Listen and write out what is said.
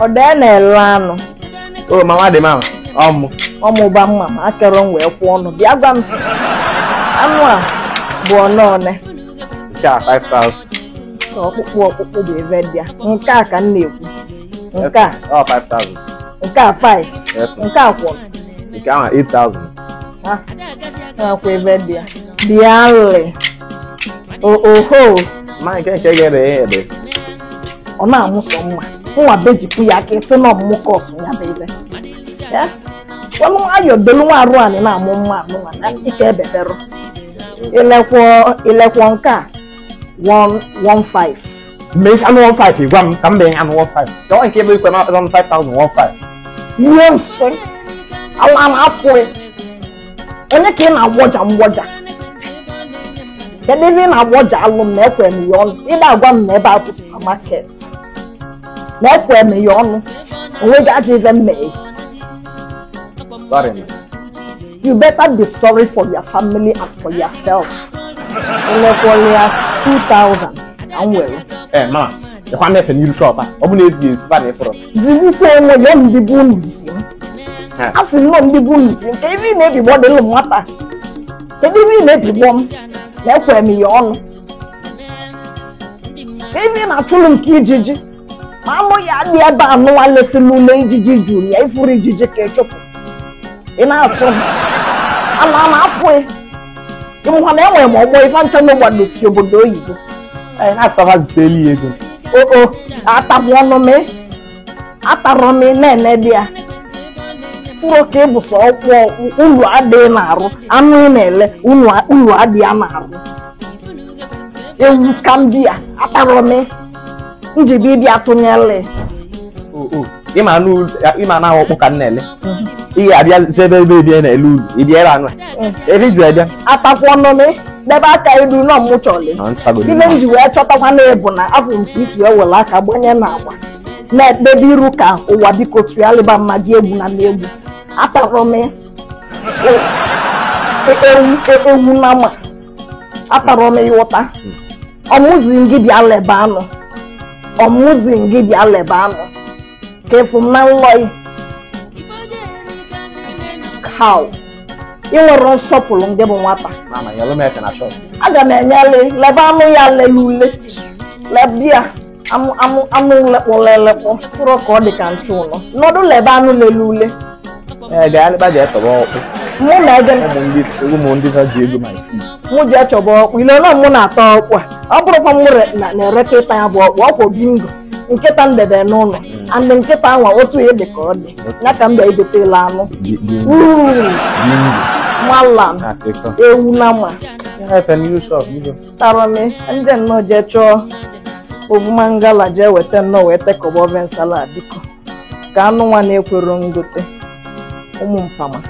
odene lanu oh mama dị mama ọmụ ọmụ ba mma ma akọrọ m wee kwụọ ọnụ bịa gwa m anụ a bụ ọnọọne cha 5000 ọkpụkpụ ọkpụkpụ bụ ebe bịa nke a ka m na-ekwu nke a ọ 5000 nke a 5 nke a kwụrụ nke ahụ thousand ha na-akwa ebe bịa bịa lị oho ma nke nke gere ya ebe ọ na-amụsọ mma fún abeji kuya ke sema muko sunya bebe ya wọnú ayọ̀ dolówó arụ anyị na-amụ mma amụ na ike ebebero ilekwo ilekwo nke a 115 mmesi anụ 15 gwa m ka m bee anụ 15 jọọ nke ebe ikwe na-akpata 5015 ihe nsị ala na-apụghị onye ka ị na-agwọja mgwọja kedu ebe na-agwọja alụ m na ekwe m ya ọnụ ị na-agwa m na na-ekwe meghe ọnụ onweghị ajọ ife mmeghe you better be sorry for your family and for yourself elekwọlịa 2000 na nwere ee ma ịkwa na-efe n'iru shọp a ọ bụ na ezi ezi ba na ịfụrụ zirikwa enwe ya ndị bụ nzi a sị nnọọ ndị bụ nzi nke ebe ị na-ebigbọ dị ụlụ nwata ebe ị na-ebigbọ m na-ekwe m ya ọnụ ebe ị na-atụlụ nke ma amụ ya adị ebe a nụwa lesịla ule ijiji juru ya ifuru ijiji ka ịchụpụ ị na-atụ ama ama apụghị ịmụha na enwere m ọgbọ ife ncha na ụgbado si obodo oyibo na-asọbaziteli ya ego oo atapụ ọnụ m atarọ m na-ene dị ya furo ka ịbụ sọ ọkwụ unu adịghị na-arụ anụ na-ele ụlọ adịghị na-arụ ewu ka m di ya atarọ m njibi ịdị atụnyele oh, oh. ịma anụ ọkpụ ka m na-ele ị ga-abịa ebe ebe ebie na-ele ulu ịbịa ebe anụ eh. ebe ju ebịa atakwa ọnụnụ debe aka iru nọ mmụchọli ah, ibe m ji wee chọtakwa na ebu na afọ nke isi ewere aka gbanye na agba na-ekpebe iru ka ụwa biko ya tụgharịba mmadụ egwu na egwu atara m e, e, e, ewu na ma atara m ịwụta hmm. ọmụzi gị bịa leba anụ ọmụzi gị bịa leba anụ ka efu na nlọị kaw ị nwere nsọpụrụ ndị bụ nwata aga m enyele leba anụ ya lele ule lebia anụ lekpọ lelekpọ kpụrụ ka ọ dị ka ntu ụlọ nọdụ leba anụ lele ule eh, mụ na ego mụ ji achọba ọkpụ ile na mụ na-ata ọkpụ a ọ bụrụkwa mụ na-ereka ịta ya bụ ọkpụ ọkpụ bingo nkịta ndebe debe n'ụlọ hmm. andị nkịta anwa otu ihe dị ka ọ dị ya ka m bịa egotela anụ malam ewu na ma tara m ndị nnọọ jee chọọ ovumangala jee weta nnọọ wee tekọba oven nsala biko ka anụ nwa na-ekwero ngote ụmụ mpama